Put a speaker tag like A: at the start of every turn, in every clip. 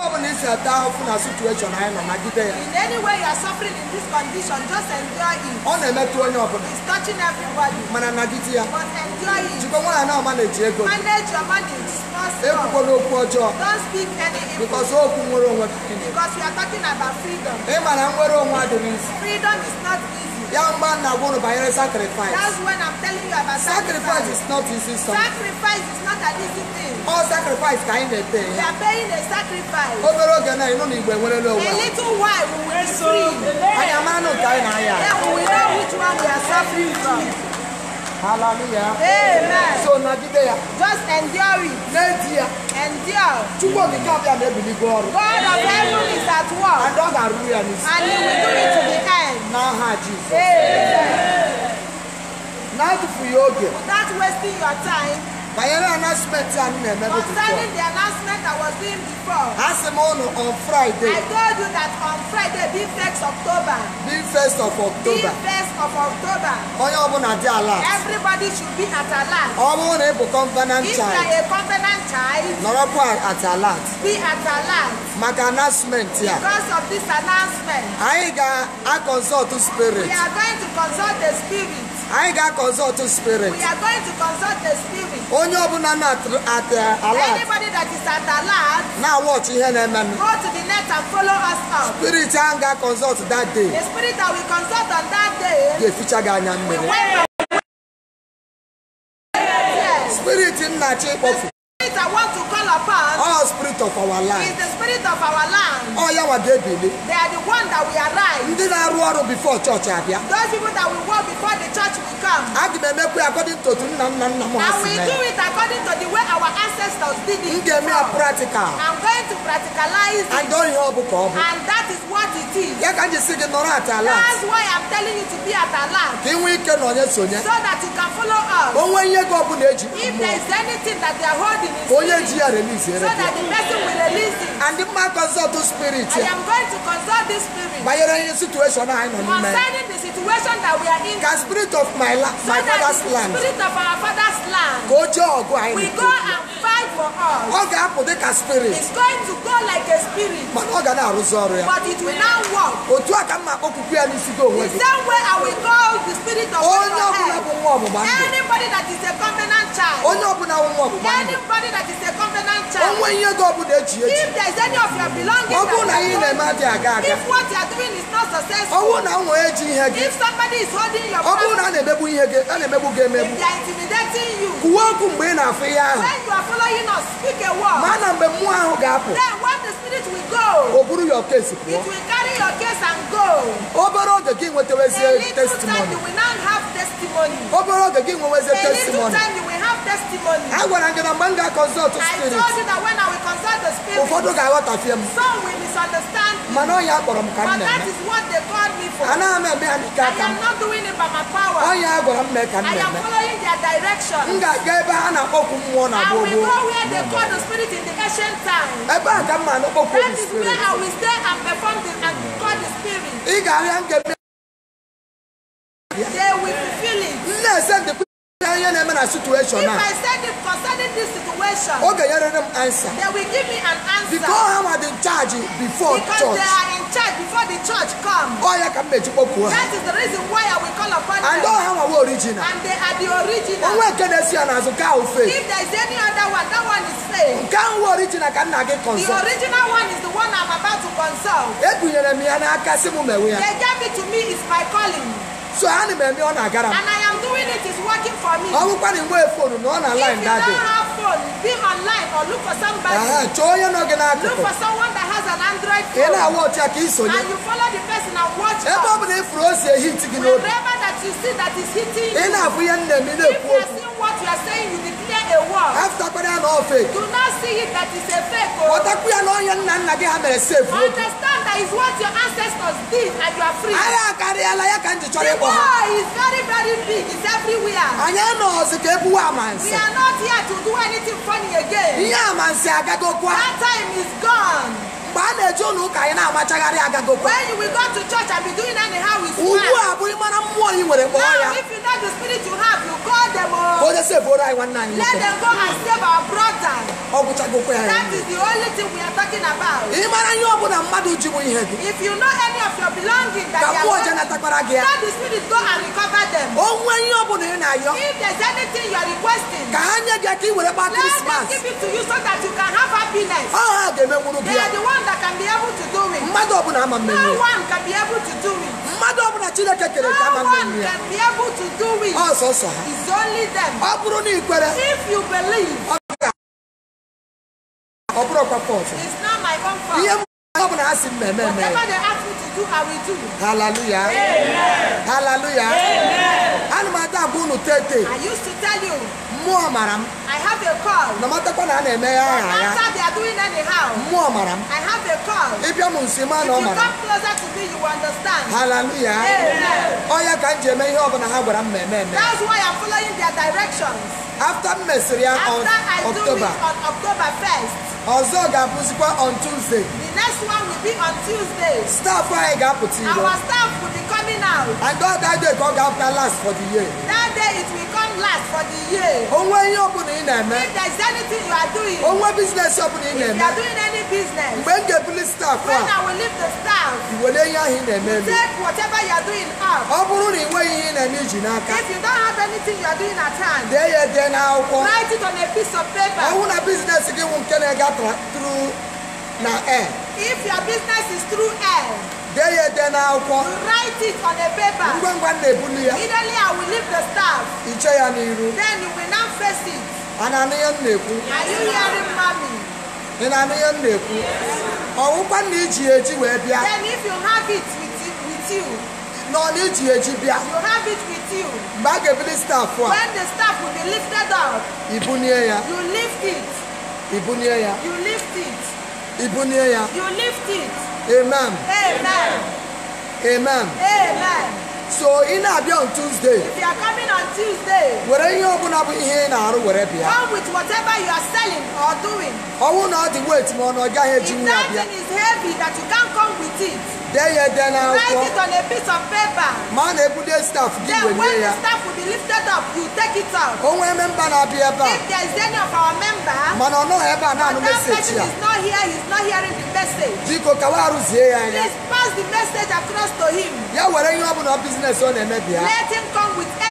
A: In any way you are suffering in this condition, just enjoy it. On na metro, onye ọbụla. It's touching everybody. Man, I'm not ya. But enjoy it. Jikwa nwaanyị na manage ego. Manage your money. Ekwukwala okwu ọjọọ. Don't speak any evil. Because okwu nwere onwe. Because we are talking about freedom. Ị ma na nwere onwe adịghị. Freedom is not easy. That man na one of our sacrifice. That's when I'm telling you about sacrifice. Sacrifice is not easy something. Sacrifice is not an easy thing. All sacrifice ka anyị na-ete. We are paying a sacrifice. Obere oge na ịnụ na Igbo enwerela onwe. A little while we will be free. Anyị amara na nke na-aya. Yeah, we will know which one we are suffering from. Hallelujah. Amen. So nagide Just endure it. N'eji ya. Endure. Chukwu okike abịa na-ebili gị ọrụ. God of heaven is at work. And ọ ga-arụrụ And he will do it to the end. N'aha Jizọs. Amen. Na-atụfughị oge. Not wasting your time. But you Concerning the announcement I was doing before. Ask him on, Friday. I told you that on Friday, being 1st October. Being 1st of October. Being 1st of October. Everybody should be at a Ọ Everybody should be at a child. If you are a covenant child. Nọrọkwa at a alert. Be at a alert. My announcement ya. Because of this announcement. Anyị I consult the spirit. We are going to consult the spirit anyị ga-akọnsọlt spirit we are going to consult the spirit onye ọbụla na-at uh, anybody that is at alert na-awọch ihe
B: na-eme m go to the net and follow us out spirit ahụ ga-akọnsọlt that day the spirit that we consult on that day ga-eficha gị anya mmiri spirit nna chi ịkpọfu spirit I want to call upon. All spirit of our land. Is the
A: spirit of our land. All yawa debele. They are the one that we arise. Ndị na-arụ ọrụ before church abịa. Those people that we work before the church will come. A ga m emekwa according to nna nna And we do it according to the way our ancestors did it. Give me a practical. I'm going to practicalize it. And ihe ọ me. And that is what it is. Ya ka you see the gị nọrọ at alert. That's why I'm telling you to be at alert. land. ị we can na onye So that you can follow us. O nwee ihe gị ọ bụla If there is anything that they are holding onye ji ya release so that the person will release it. and mma consult spirit I am going to consult this spirit. banyere ihe situation anyị nọ n'ime concerning the situation that we are in. ka spirit of my, father's land spirit of our father's land. ka o jee ọgụ anyị. go and for us. Ọ ga-apụ dị ka spirit. It's going to go like a spirit. Mana ọ ga na-arụzi ọrụ ya. But it will now work. Otu a ka m na ya n'isi gị onwe gị. The same way I will call the spirit of God. Onye ọbụla bụ nwa ọgbụgba ndụ. Anybody that is a covenant child. Onye ọbụla bụ nwa ọgbụgba ndụ. Anybody that is a covenant child. Onwe ihe gị ọbụla eji eji. If there is any of your belongings. Ọ bụrụ na ihe na-eme adịghị aga aga. If what you are doing is not successful. Ọ bụrụ na nwa eji ihe gị. If somebody is holding your property. Ọ bụrụ na a na-emegbu ihe gị a na-emegbu gị emegbu. If they are intimidating you. Kwuo okwu mgbe ị na-afụ ihe ahụ. When you are following must speak a word. Mana mgbe mmụọ ahụ ga-apụ. Then when the spirit will go. O buru your case pụọ. It will carry your case and go. Obere oge gị nwetawa ezie testimony. A little time you will now have testimony. Obere oge gị nwewa ezie testimony. A little time you will have testimony. A gwara gị na mgbe m ga-akọzọtụ spirit. I told you that when I ụfọdụ ga-aghọtafie m mana ọnya akpọrọ m ka m na-eme anaghị m eme ya n'ike aka m ọnya a gwara m mee ka m na-eme m ga-aga ebe ha na-akpọkwu mmụọ na gboo gboo ebe a ka m ma
B: na-akpọkwu ị ga-ahịa nke na situation na. if I send him concerning this situation. o ga yẹrẹ answer. they will give me an answer. because how are
A: they charge before because church. because they are in charge before the church come. ọ yẹ ka mmechi kpọkuo ha. that is the reason why I will call upon them. and all how are we original. and they are the original. onwe ekene si ya n'azụ ka ahụ fail. if there is any other one that one is fail. nke ahụ we original ka nna gị consult. the original one is the one I am about to consult. ebunyere m ya n'aka si mewe ya. they gave it to me is my calling. so ha na m ọ na-agara m. and I am doing it is working for me. ọ bụkwa na inwee fonu na ọ na line if you don't have phone be on line or look for somebody. chọọ onye nọ gị n'akụkụ. look for someone that has an android phone. ị na-awa ọcha ka and you follow the person and watch her. ebe ọ bụla ifuru o si ehit gị n'obi. wherever that you see that is hitting you. ị na-abụ ihe nna m ị na if you are seeing what you are saying you declare a word. After ya na ọ fake. do not see it that it's a fake o. Oh. ọtakwu ya na onye nna nna gị ha mere safe. That is what your ancestors did and you are free. Anyị akarịala ya ka njikọ ịkpọ ha. The war is very very big. It's everywhere. Anyị anọghịzi ka ebuwe amansi. We are not here to do anything funny again. Ihe amansi agagokwa. That time is gone. mgbe a na-eje ụlọ ụka anyị na-amachagharị agagokwa. When we go to church and be doing anyhow with smile. Ugbu a bụrụ mara mmụọ ị nwere kpọọ ya. Now if you let them go and save our brother that is the only thing we are talking about if you know any of your belongings that you are ọjọọ let the spirit go and recover them if there's anything you are requesting let them give it to you so that you can have happiness they are the one that can be able to do it no one can be able to do it mmadụ ọbụla chineke
B: kere ka ama mmiri ya ọsọsọ ha ọ bụrụ na ị kwere ọ bụrụ ọkwa pọtụ ihe ọ bụla ha si mmemme eme haleluya haleluya ana m
A: ada agwa unu tete mmụọ mara m I have a call. na a na-eme ya aha ya they are doing anyhow. mmụọ mara m I have a call. ịbịa m nsi ma na ọ mara If you come closer to me, you understand. ka m ji eme ihe ọbụla ha gwara m ma eme That's why I'm following their directions. afta m mesịrị ya After I do on October 1st, ọzọ ga-abụzikwa on Tuesday the anyị ga-apụta iro Our and ka ọ ga-apụta last for the year it will come last for the year. Onwe ihe ọ bụla ị na If there is anything you are doing. Onwe business ọ bụla ị na If you are doing any business. Mgbe m ga-ebuli staff a. When I will leave the staff. Iwere ihe ahụ ị na-eme Take whatever you are doing up. Ọ bụrụ na ị nweghị ihe ị na n'aka. If you don't have anything you are doing at hand. Dee ya ede n'akwụkwọ. Write it on a piece of paper. Ọ bụrụ na business gị nwụ nke na-aga through na air. If your business is through air dee ya ede n'akwụkwọ write it on a paper ngwa ngwa na-ebuli ya immediately I will leave the staff iche ya n'iru then you will now face it a na m na-ekwu are you hearing mommy ị na-anụ m na-ekwu ọwụkwa na iji eji wee bịa then if you have it with, it, with you nọ n'iji eji bịa you have it with you mgbe a ga-ebuli staff a when the staff will be lifted up ibunie ya you lift it ibunie ya you lift it ibunie ya you lift it Amen. Amen. Amen. Amen. So ị na-abịa on Tuesday. If you are coming on Tuesday. Were ihe ọbụla bụ ihe ị na-arụ were bịa. Come with whatever you are selling or doing. Ọnwụ na ọ dị weight ma ọ na ọ gaghị ejinwu ya bịa. If that thing is heavy that you can't come with it. Then you then now write it on a piece of paper. Man, a good staff give Then when the staff will be lifted up, you take it out. Oh, member na be ever. If there is any of our member, man, I oh, no ever now no message person is not here. He's not hearing the
B: message. Biko kawaru zie ya. Please pass the message across to him. Yeah, where you have no business on the media. Let him come with any.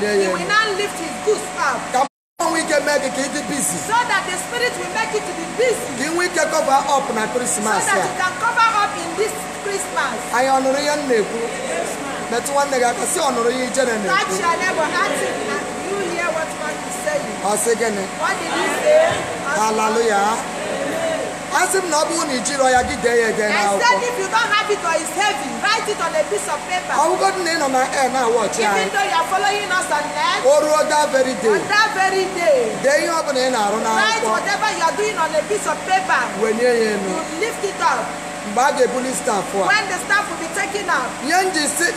B: He will now lift his goose up. Come on, we can make it busy. So that the spirit will make it
A: ike cover up na Christmas. so that you can cover up in this christmas anyị ọnụrụ ihe m na-ekwu metụ nwanne gị aka si ọnụrụ ihe ije na na-ekwu ọ sị gịnị Hallelujah asị na ọ na ijiro ya gị dee ya ede n'akwụkwọ I said if you don't have it or it's heavy write it on a piece of paper ọgwụgwọdụ eh, na ị nọ na air na-awọchi anyị even though you are following us on net o ruo that very day on that very day dee ihe ọ bụla ị na-arụ n'akwụkwọ write whatever you are doing on a piece of paper wenye ya enu you lift it up mgbe a ga-ebuli staff a when the staff will be taken out.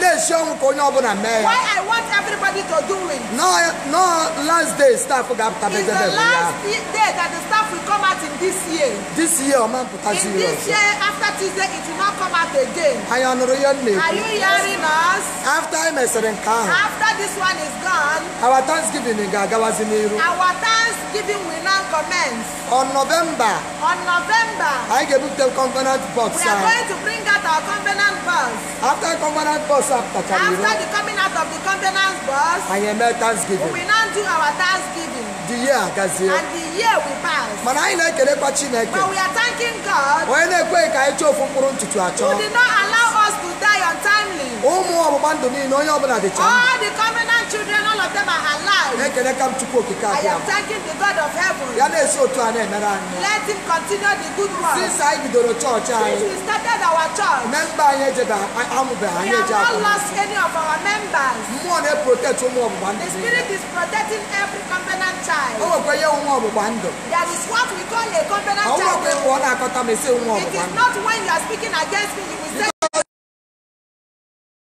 A: na-esi ọnwụ ka onye ọbụla mee ya why I want everybody to do it. no no last day staff ga-apụta bedebe ya. is the last day that the staff will come out in this year. this year ọ ma mpụta in this year after Tuesday it will not come out again. ihe na-ekwu. are you hearing us. after e mesịrị nke ahụ. after this one is gone. our thanksgiving ga-agawazi n'iru. our thanksgiving will now commence. on November. on November. anyị ga-ebupute covenant box are going to bring out our covenant bus. After covenant bus after the coming out of the covenant bus. Àyẹ̀mẹ́ thanksgiving. We will now do our thanksgiving. The year gazie. And the year we pass. Mana anyị na-ekelekwa Chineke. But we are thanking God. Onye na-ekweghị ka anyị chọọ ofu mkpụrụ ntutu achọ. Who did not allow us die untimely. ụmụ ọgbụgba ndụ niile onye ọbụla dị chọọ. all the children all of them are alive. na-ekeleka m Chukwu okike abịa. the God of heaven. ya na-esi otu a na-emere anyị. let him continue the good work. since anyị bidoro chọọchị anyị. we started our church. memba anyị ejebe amụbe
B: anyị eje akwụkwọ. we have not lost
A: any of our members. mmụọ
B: na-eprotect ụmụ ọgbụgba ndụ. the spirit is protecting every covenant child. o nwekwa ihe ụmụ ọgbụgba ndụ. there is what we call a covenant child. ọ nwekwa ịpụ na-akọta ma esi ụmụ ọgbụgba ndụ. it is not when you are speaking against me you will say.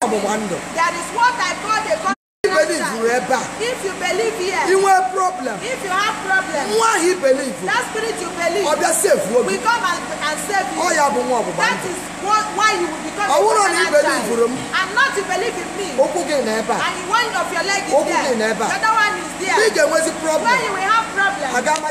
B: Wonder. That is what I call the God. If you believe here. You have problem. If you have problem. Why he believe? That spirit you believe. Or that save We come and,
A: and save you. Oh, yeah, but one That is what, why you will become. I wouldn't he believe you. And not to believe in me. Okay, never. And one of your leg is okay, there. Never. The other one is there. Big, where's the problem? Where you will have problem. I got my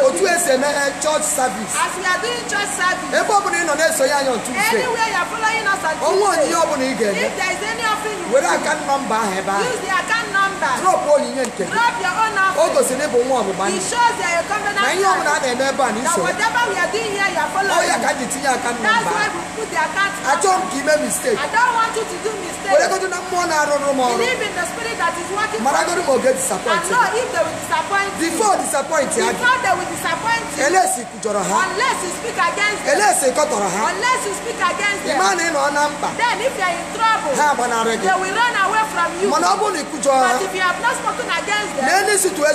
A: otu ese na eh, church service. as we are doing church service. ebe ọbụla ị nọ na-eso ya anya on Tuesday. anywhere you are following us on Tuesday. ọnwa onyinye ọbụla ị ga-eme. if there is any offering you. were account number ahụ ebe ahụ. use the account Drop all in your Drop your own offering. All those in one of money. It shows that you're covenant. Now you are not a member. That whatever we are doing here, you are following. Oh, you can't your account That's why we put the account I don't give a mistake. I don't want you to do mistakes. We're going to know more now. Believe in the spirit that is working for you. Maragodo will get disappointed. And know if they will disappoint you. Before disappoint you. Before they will disappoint you. Unless you kujoro ha. Unless you speak against them. Unless you kotoro ha. Unless you speak against them. Imani no number. Then if they are in trouble. They will run from you. mana ọ bụrụ na ịkụjọ ha. but if you have not spoken against na ministry ya.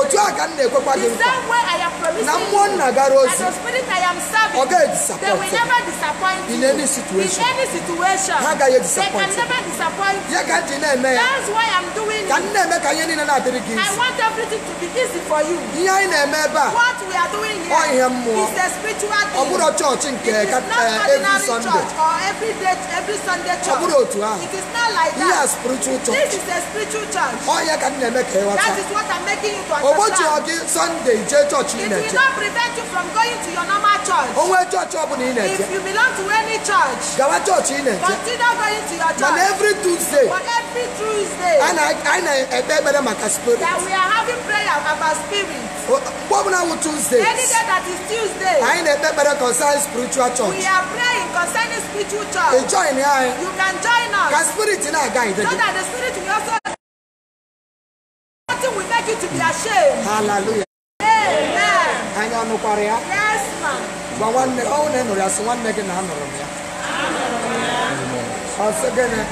A: otu a ka m na-ekwekwa na mụọ nna ozi. ọ ga disappoint. they will never disappoint you. in any situation. ha agaghị disappoint. they ya ka ntị na-eme ya. that's ka m eme ka ihe niile na-adịrị gị isi. I ihe anyị na-eme ebe a. what ọ ihe mmụọ. a spiritual thing. ọ bụrụ chọọchị nke every day every Sunday church. ọ bụrụ ahụ. it is not like that. ihe a spiritual church. this is a spiritual church. ọ ka m na-eme ka ịghọta. that is what I'm making you to understand. ogbochi ọgị Sunday jee chọọchị ị na-eje. it will not prevent you from going to your normal church. onwe chọọchị ọ bụla ị na-eje. if you belong to any church. gawa chọọchị ị na-eje. consider going to your church. mana every Tuesday. but every every Tuesday. A na anyị na-ekpe maka spirit. That we are having prayer about spirit. Gwamna oh, wụ Tuesday. Any day that is Tuesday. Anyị na-ekpe ekpere concerning
B: spiritual church. We are praying concerning spiritual church. Ị join anyị. You can join us. Ka spirit na-aga ide So that the spirit will also. Nothing will make you to be ashamed. Hallelujah.
A: Amen.
B: Anyị anụkwara ya. Yes ma. Gwa nwanne ọ
A: nụrụ ya sị nwanne gị na anụrụ m ya. Ọ sị gịnị.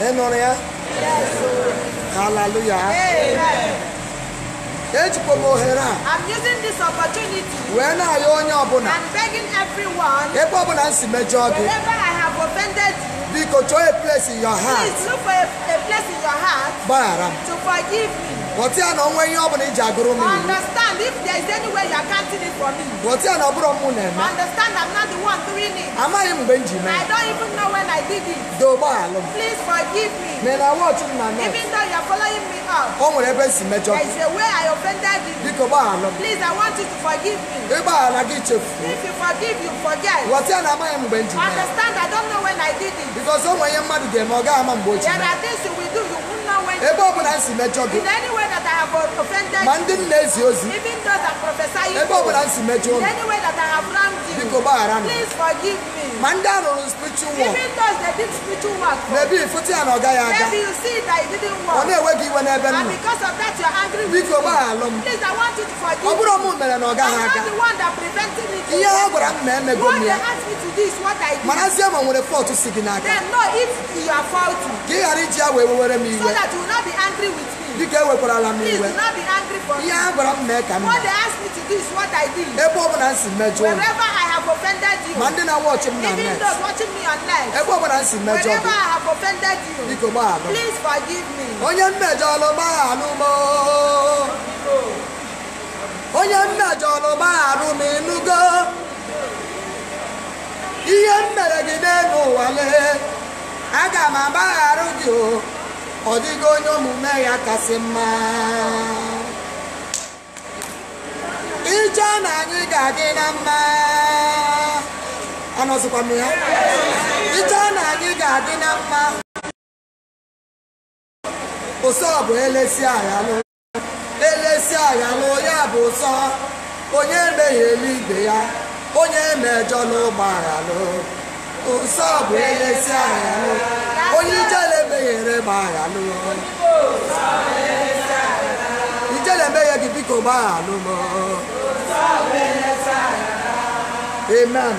A: Amen Yes. Hallelujah. Amen. ejikwa m I'm using this opportunity wee na-ayọ onye ọbụla and begging everyone ebe ọbụla I have offended you biko chọọ a place in your heart please look for a, a place in your heart gbaghara to forgive me Bọ̀tí àná ọmọ ẹyin ọ̀bùnú ìjà agoro mi. Understand if there is any way you are counting it for me. Bọ̀tí àná ọbúrọ̀ mu nà ẹ̀mẹ́. Understand I'm not the one doing it. Amaghị m mgbe m I don't even know when I did it. Dogbo alụ Please forgive me. Mena wọọchị m na net. Even though you are following me up. O nwere ebe si mejọ. There is a way I offended you. Biko gbaghara m. Please I want you to forgive me. Ịgbaghara gị chefu. If you forgive you forget. Bọ̀tí àná amaghị m mgbe m Understand I don't know when I did it. Because o nwere ihe mmadụ ga-eme ọ gaghị ama mgbe ebe ọ bụla nsi mejọ gị ma ndị m na-ezi ozi ebe ọ bụla nsi mejọ unu biko gbaghara m Manda no spiritual work. Even though that did spiritual work. Maybe footy and oga ya Maybe you see that it didn't work. Ọ̀nà ìwé gị iwe n'ebe nnu. And because of that you're angry with me. Please I want you to forgive me. I'm not the one that prevented me to. Ihe What they asked me to do is what I did. Manazie ma nwere fault si gị n'aka. Then no if you are faulty. Ka So that you will not be angry with me. E Please do not be angry for me. What they asked me to do is what I did. Wherever I offended you. Mande na watch me na net. watching me on net. Ẹ gbọ́ bọ̀dá ń sìn mẹ́jọ. Whenever I have offended you. Biko máa lọ. Please forgive me. Onye mmejọ lo máa lú mọ́. Onye mmejọ ló máa lú mi nugo. Ihe m mere gị n'elu ụwa lee. Aga m agbaghara gị o. Ọ dịghị onye omume ya kasị mma. iche na anyị ga-adị na mma
B: anọzikwa m ya iche na anyị ga-adị na mma ụsọ bụ elesi aghalụ elesi aghalụ ya bụ ụsọ onye emeghe eluigwe ya
A: onye emejọ n'ụgbọ aghalụ ụsọ bụ elesi aghalụ
B: onye ijele
A: emeghere gba aghalụ ijele emeghe gị biko gbaghalụ m Amen. Amen.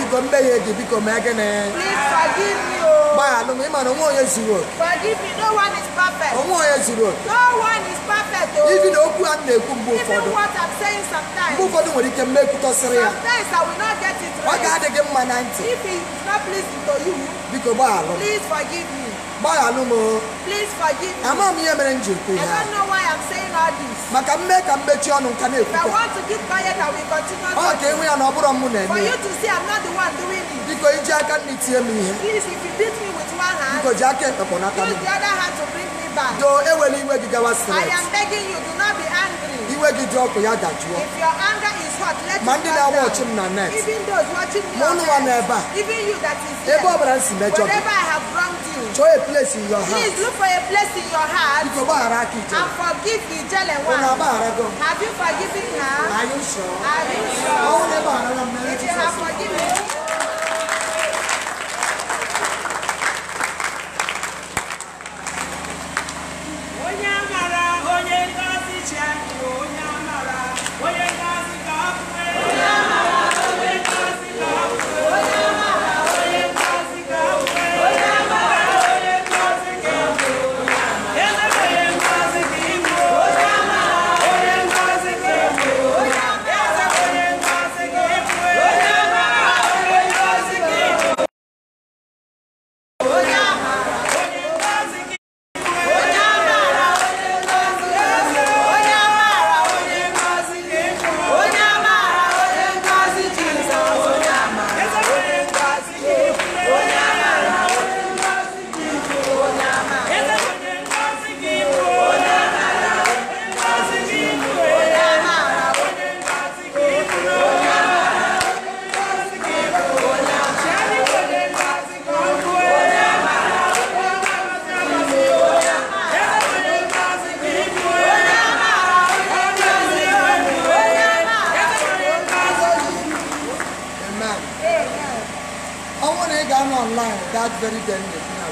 A: Biko mbe ye ji Please forgive me o. Ba no me no one is Forgive me. No one is perfect. No one is perfect o. Oh. Even okwu an na Even what I'm saying sometimes. Mbo fodo nwere ike mme kwuto Sometimes I will not get it right. Ọ ga adị gị mma na ntị. If it's not pleasing to you. Biko Please forgive me gbaya no mo please forgive me m ihe mere m ji ekwu ya i don't know why i'm saying all this maka m mee ka m mechie ọnụ nka na-ekwu i want to keep quiet i will continue to ọ ka enwe ya na ọ bụrụ m na-eme for you to see i'm not the one doing it biko iji aka nri tie m ihe please if you beat me with one hand biko ji aka ekpekpọ n'aka m use the other hand to bring me back do ewela iwe gị gawa i am begging you do not be angry iwe gị dị ọkụ ya dajụọ if your anger is hot let ma ndị na-awa ọchị m na net even those watching ma ụnụ nwa n'ebe a even you that is here m si mejọ gị whatever i have wrong enjoy a place in your heart. Please look for a place in your heart. And forgive the jealous oh, one. Have you forgiven her? Are you sure? Are you sure? Oh, If you have forgiven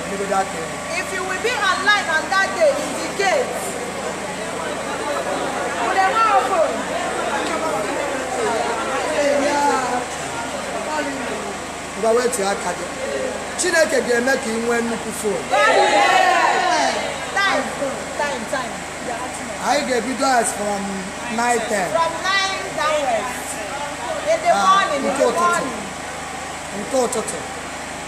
B: If you
A: will be alive on that day, indicate. Will they not open? Ngwa wetu aka gị. Chineke ga-eme ka ị nwee nnukwu fon. Anyị ga-ebido as from 9:10. From 9 downwards. In the ah, morning, in the morning. Nke ụtụtụ.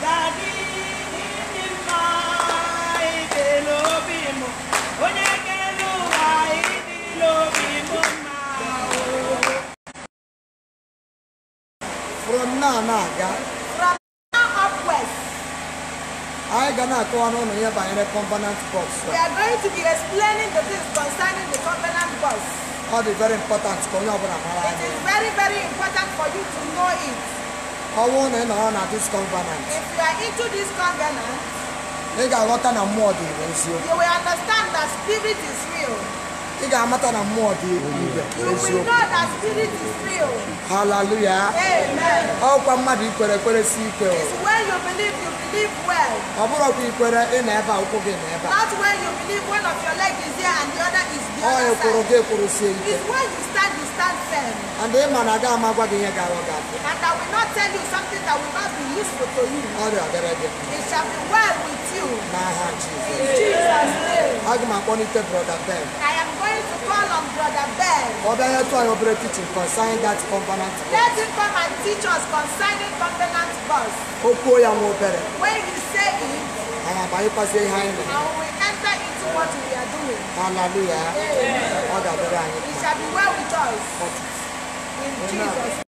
A: from
B: now na-aga anyị ga na-akọwa n'ụlọ ihe the component box we are going to be
A: explaining the things concerning the component box ọ dị very important ka onye ọbụla it is very very important for you to know it ọnwụ na ị nọrọ na this covenant if you are into this covenant ị ga-aghọta na mmụọ dị ire eziokwu you will understand that spirit is real ị ga-amata na mmụọ dị ire eziokwu haleluya ọkwa mmadụ ikwere ekwere si ikwe ọ bụrụ ọkwa ikwere ị na ebe akwụkwọ gị na ebe other. Oyo koroge korose ike. It's where you stand, you stand firm. And the man I amagwa my ihe ga-awa gị And I will not tell you something that will not be useful to you. Ọrịa get ready. It shall be well with you. N'aha Jizọs. In Jesus' name. Aga m akpọlite brọda Ben. I am going to call on brother Ben. Ọ bịa nye tụọ anyị obere teaching concerning that covenant Let him come and teach us concerning covenant verse. Oh, kwuo ya nwa obere. When you say it. I abanyekwazie ihe anyị nọ. And we enter in what we are doing.
B: Hallelujah.
A: Amen. It shall be well with us. In Jesus' name.